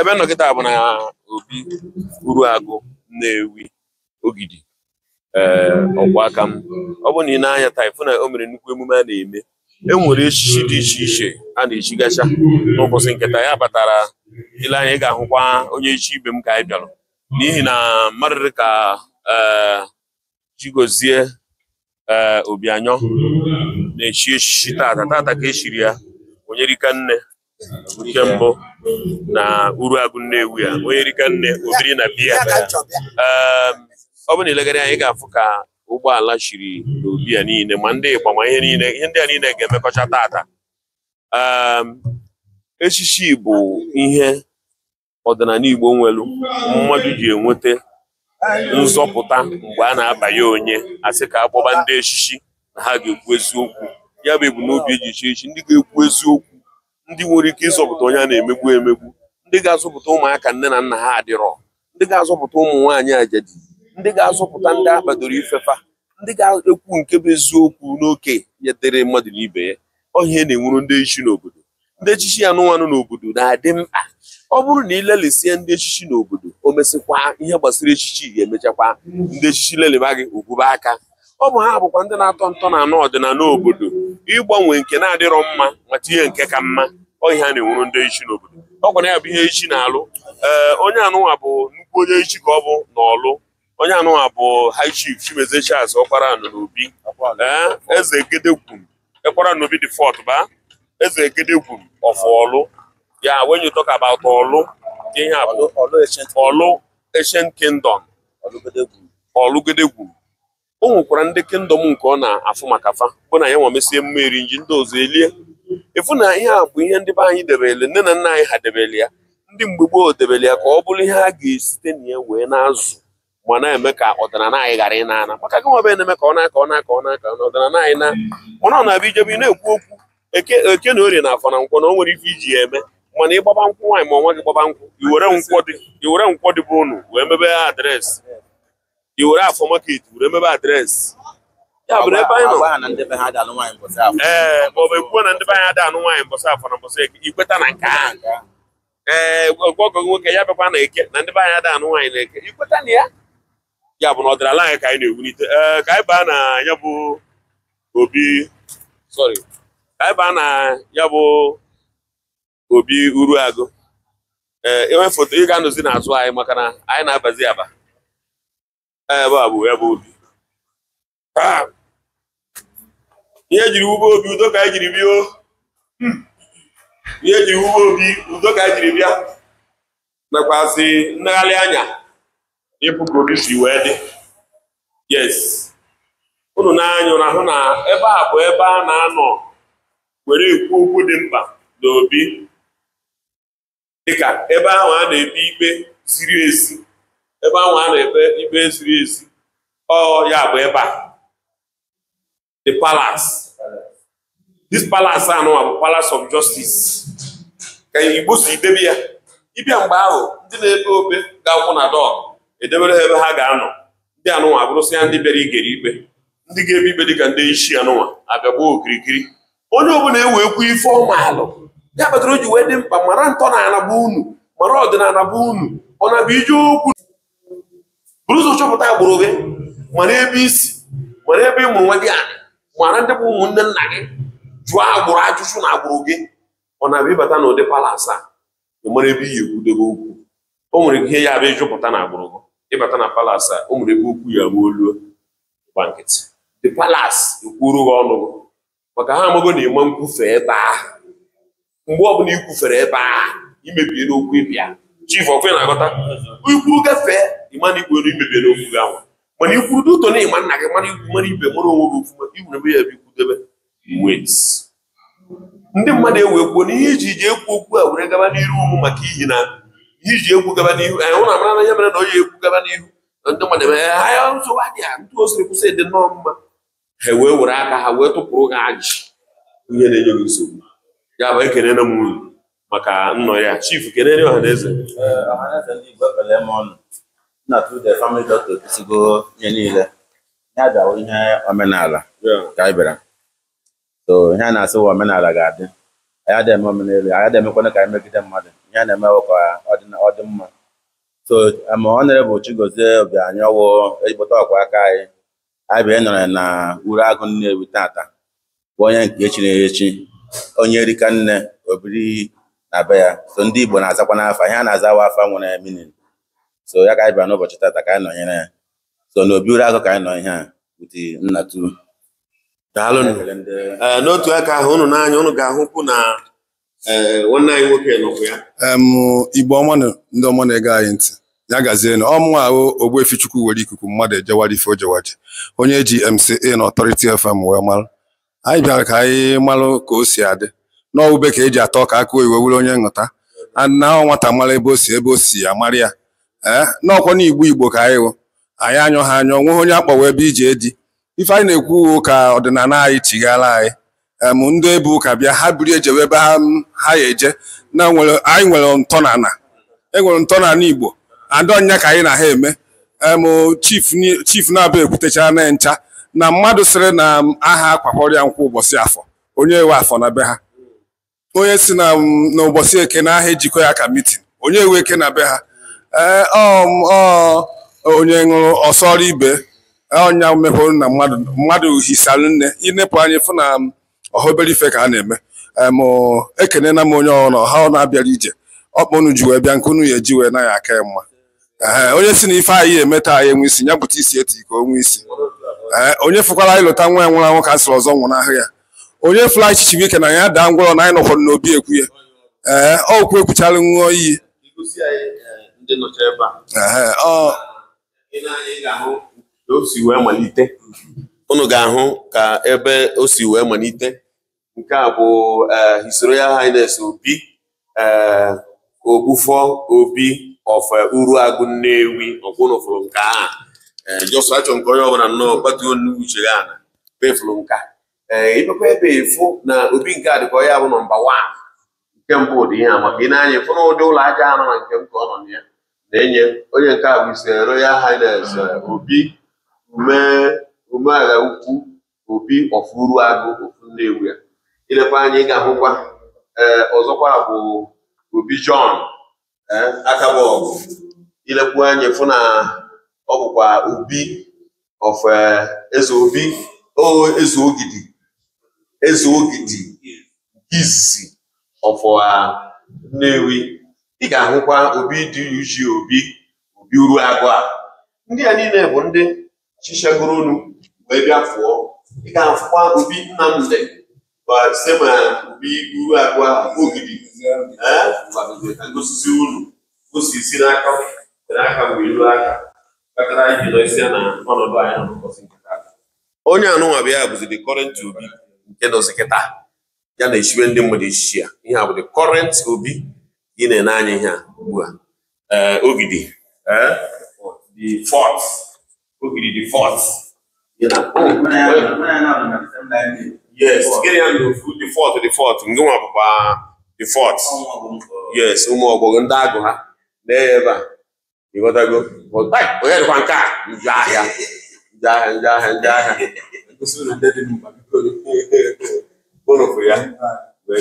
ebe nọkịta bụ na obi na nnewi ogidi ee eh, aka m ọ bụ na ị na-anya na o mere nnukwu emume a na-eme e nwere echichi dị iche iche a na-echigacha n'ụbọchị nketa ya batara ile anya ị ga-ahụkwa onye echi ibe m ka anyị bịara n'ihi na mmadụ dị ka eh, Chigozie eh, Obianyọ na-echi echichi tata tata ka echiri ya onye rika nne nke mbụ na agụ Nnewi a onye rika nne obiri na biya ehm, ọ bụrụ na ilegharị anyị ga-afụ ka ụgbọala chiri n'obi ya niile ma ndị Igba ma ihe niile ihe ndị a niile ga-emekọcha tata ehm, echichi bụ ihe ọdịnala Igbo nwelu mmadụ ji enweta nzọpụta mgbe a na-abanye onye asị ka akpọba ndị echichi na ha ga-ekwu eziokwu ya bụ ebumnobi eji chi ndị ga-ekwu eziokwu ndị nwere ike ịzọpụta onye a na-emegbu emegbu ndị ga-azọpụta ụmụaka nne na nna ha adịrọ ndị ga-azọpụta ụmụ nwaanyị ajadi ndị ga-azọpụta ndị akpadoro ifefa ndị ga-ekwu nke bụ eziokwu n'oke nyetere mmadụ na ibe ya ọhịa na-enwuru ndị echichi n'obodo ndị echichi anụmanụ n'obodo na-adị mkpa ọ bụrụ na ị lelịsịa ndị echichi n'obodo o mesịkwa ihe gbasara echichi ga-emechakwa ndị echichi leliba gị ogwube aka ọ bụ ha bụkwa ndị na-atọ ntọ na anụ ọdịnala obodo ịgbanwe nke na-adịrọ mma mata ihe nke ka mma ihe na-enwuru ndị echi n'obodo ọ kwa na ya bụ ihe echi na-alụ ee onye anụnwa bụ nnukwu onye echi ka ọ bụ na ọlụ onye anụnwa bụ high chief Chimezie ọkwara anụ n'obi eze gedegwu ekwara n'obi dị fọt ba eze gedegwu ọfọ ọlụ ya when you talk about ọlụ ihe a bụ ọlụ ancient kingdom ọlụgedegwu o nwekwara ndị kingdom nke ọ na-afụ maka fa bụ na ya nwa mesie mmeri nji ndị ọzọ elie ịfụ na ihe a bụ ihe ndị be anyị debere nne na nna anyị ha debere ya ndị mgbe gboo debele ya ka ọ bụrụ ihe a ga-esite na ya wee na-azụ ma na-eme ka ọdịnala anyị ghara ị na-ana maka gị nwa na-eme ka ọ na-aka ọ na-aka ọ na-aka ọdịnala anyị na mana ọ na-abịa ijebe ị na-ekwu okwu eke na orie na afọ na nkwọ na o nwere ife iji ya eme mana ịgbaba nkwụ nwaanyị ma ọnwa gị gbaba nkwụ iwere nkwọ dị bụ unu wee mebe adreesị iwere afọ market were mebe adreesị ee eh, bụ ekwuo na ndị be anyị ada anụ nwaanyị afọ na mbọsị eke ikweta na nke a, ee ọgọgọ eh, nwoke ya bịakwa na eke na ndị be anyị ada anụ nwaanyị na eke ikweta na ya ya bụ na ọdịnala anyị ka anyị na-ewulite ee eh, ka anyị baa na ya bụ obi sorry ka anyị baa na ya bụ obi uruagụ e ee enwe foto ị ga-anọzi n'azụ anyị maka na anyị na-abazi aba ee bụ ya bụ obi ah! ihe jiri ugbo obi udo ka anyị jiri bịa hmm. ihe jiri ugbo obi udo ka anyị jiri bịa nakwazi nnagharị anya ịpụ obi si wee dị yes unu na na hụ na ebe a bụ ebe a na-anọ were ekwu okwu dị mkpa na obi dịka ebe ahụ a na-ebi ikpe ziri ezi ebe ahụ a na-ebe ikpe ziri ezi ọ ya bụ ebe a the palace. This palace a bụ palace of justice ka Igbo si debe ya ịbịa mgbe ahụ ndị na-epe ope ga-akwụ na dọk edebere ha ebe ha ga-anọ ndị anụnwa abụrụsị ya ndị bere igere ikpe ndị ga-ebe ikpe dịka ndị isi anụnwa abịagbuo okirikiri onye ọbụla ewe ekwu ife ọmaalụ ya kpatara o ji wee dị mkpa mara ntọ na anabụ unu mara ọdịnala bụ unu ọ na ije okwu bụrụ ụzọ chọpụta agbụrụ gị mara ebe isi mara ebe ị mụrụ nwa gị mara ndị bụ ụmụnne nna gị jụọ agbụrụ ajụjụ na agbụrụ gị ọ na-abịa ịbata n'ụdị ụdị a ị mara ebe iyi ekwudobe okwu o nwere ihe ya abịa ịjụpụta na agbụrụ gị ịbata na palas a o nwere ebe okwu ya gbuo olu gba nkịtị the palas ekwuru gị ọnụ gị maka ha amago na ịma nkwufe ebe ahụ mgbe ọbụla ikwufere kwufere ebe ahụ imebiere okwu ịbịa chief ọkwe na-agọta ikwu gafee ịma na ikwu imebiere okwu gị anwa mana ikwuru n'uto na ịma nna gị mara igwu mara ibe mara onwe gị ofuma iwere ebe ya ebe ikwudebe wet ndị mmadụ ewekwuo na ihe iji ji ekwu okwu a were gaba n'iru ụmụ maka ihi na ihe iji ekwu gaba n'ihu anyị hụ na n'anya mere na onye ekwu gaba n'ihu na ndị mmadụ eme ha ya nsogbu adịghị ndị o siri kwụsị dị nnọọ mma ha wee were aka ha wee tụpụrụ gị ji. ihe na-enye gị nsogbu ya bụ ekelena m maka nnọ ya chif kelere ọha na eze na tude family doctor kụsigo ihe niile ya bịawo ihe omenala ka anyị bịara so ihe a na-asị wa omenala ga-adị anyị adịghị eme omenala anyị adịghị emekwana ka anyị megide mmadụ ihe a na-emewe ka ọ dị mma so ma ọ nere bụ Chigozie Obianọ ọwụ ejikpụta ọkwa aka anyị anyị bịa e nọrọ na uru agụ Nnewi tata bụ onye nke e echi na-echi onye erika nne obiri na be ya so ndị Igbo na-azakwa n'afọ, ihe a na-aza wa afa nwere minin so ya ka anyị bịara n'ụbọchị tata ka anyị nọnyere ya so na obi uru agụ ka anyị nọ ihe a buti nnatu daalụnụ n'otu aka ahụ ụnụ n'anya ụnụ ga-ahụkwu na e, nwanne anyị nwoke nọkwa ya igbo ọma ndị ọma na-ege anyị ntị ya gazienụ ọmụnwa ahụ ogbuefi chukwu were ikuku mmadụ ejewara ife ojewaji, onye ji MCA na ọtọriti FM wee mara anyị bịara ka anyị malụ ka o si adị n'ọwụbe ka eji atọ ka aka oyiwe were onye nghọta na nwata mara ebe o si ebe o si ya ya ee eh? n'ọkwa na igbo ka anyị wụ anyị anyọ ha anyọ nweghị onye akpọwa ebe ije dị ife anyị na-ekwu uwe ụka ọdịnala anyị chighala anyị em ndị ebe ụka bịa ha biri ejewe ebe ha ya eje na anyị nwere ntọnana enwere ntọnana igbo adọnya ka anyị na ha eme em chief na-aba ekwutechara na ncha na mmadụ sịrị na aha akwakọrọ ya nkwụ ụbọchị afọ onye we afọ na be ha onye si na ụbọchị eke na aha ejikọ ya ka mitin onye we eke na be ha ee eh, um, onye ṅụrụ ọsọrọ ibe eh, ọnya mehụrụ na mmadụ mmadụ hisara nne inepụ anyị fụ na um, ọha ife ka a na-eme um, ekenena m onye ọhụrụ ọha ọ na-abịara ije ọkpa unu ji wee bịa nke unu ya eji wee aka ya mma ee eh, onye si na ife anyị eme taa ya enwe isi ya bụta isi eti ka onwe isi ee onye fụkwara anyị lụta nwa ya nwụrụ anwụ ka a ọzọ nwụrụ ahụ ya onye fụla echichi ike na ya daa ngwọrọ na anyị nọkwara n'obi ekwu ya ee kwu ekwuchara nwa iyi ndị nọcha ebe a ị na-eyi ka o si wee malite. unu ga-ahụ ka ebe o si wee malite nke a bụ eh, His ya Highness Obi eh, Ogbufo Obi of eh, Uruagụ Nnewi ọbụna fụrụ nka a jọsụ achọ nke onye ọbụla nnọọ kpatuo nnukwu uche ya na pefụrụ nka ịbekwa ebe efu na obi nke a dịka onye bụ nọmba wan nke mbụ dị ihe amaka ị na-anya ịfụ na ụdị ụlọ aja anọ na nke m ka ọ nọ na ya na-enye onye nke a bụ ise Royal Highness mm. eh, Obi umeala ukwu Obi Ofuruagụ ofu Nnewi ya ilekwa anya ịga hụkwa ee eh, ọzọkwa bụ Obi John eh, Akabọgụ Ilekwu anya fụ na ọ bụkwa Obi of Eze Obi Eze Ogidi Eze Ogidi nke izizi of ah, Nnewi ị ga-ahụkwa Obi dị Uju Obi Obi a. ndị a niile bụ ndị chichagoro unu wee bịa fụọ ị ga-afụkwa Obi se ma Obi Uruagụa Ogidi osisi unu o si si n'aka n'aka wee ruo aka kpatara iji nọ isi na ọnọdụ anyị nọ n'ụbọchị onye anụnwa bịa bụzi the current Obi nke nọzi kịta ya na echiwe ndị mmadụ echichi ya ihe a bụ the Obi ị na-ene anya ihe a ugbu a eh, eh? ogidi the yes ndị nwa yes ụmụ ọgbọgọ ndị agụ ha na ebe a ịghọtago onye dịkwa nke a njọ ahịa njọ ahịa njọ ahịa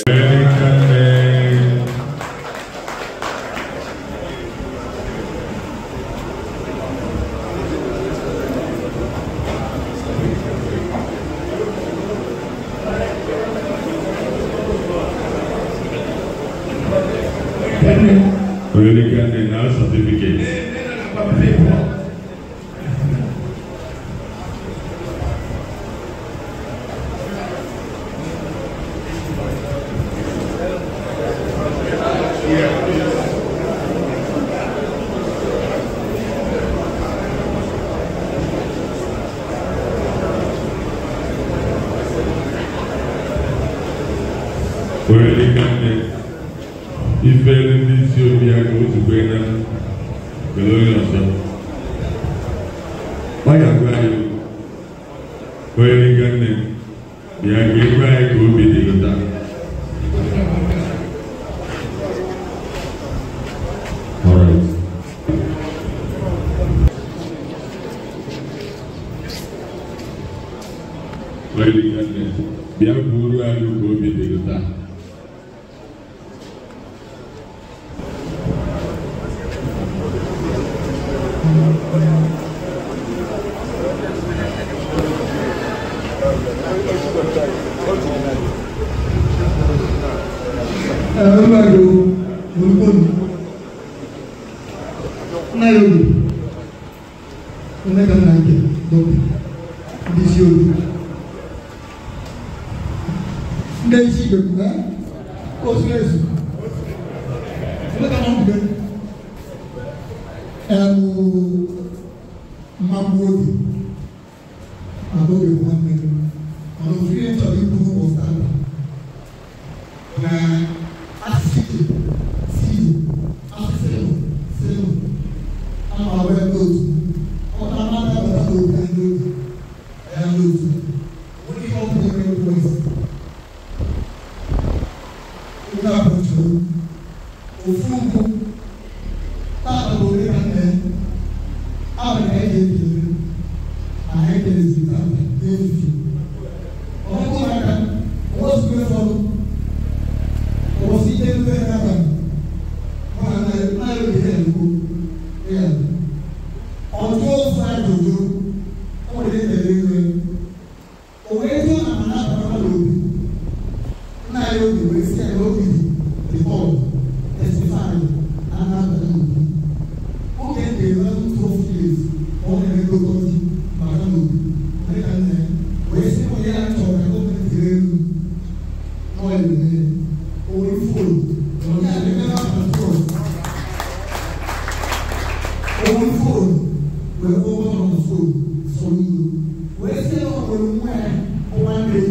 ahịa ande ifere ndị isi obi aka ozugbo na were onye ọzọ ọ ga-agwa anyị onye nịga nne ya ga-ekwe anyị ka obi dị ụta Bịa buru anyị ka obi ẹ̀rọ máa lo orúkọ mi náírà onega na nke dobe ndị isi obi ndị isi igbe kwuga na bɔtɔ ofunfun taa bɔtɔ ne ka ọmọ fóònù wọ́n ẹ̀kọ́ wọn ọmọ fóònù sọ̀rọ̀ yìí wọ́n ẹ̀sẹ̀ ọmọ ìmú ẹ̀ ọmọ ẹ̀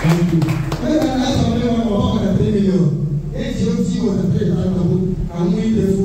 Thank you.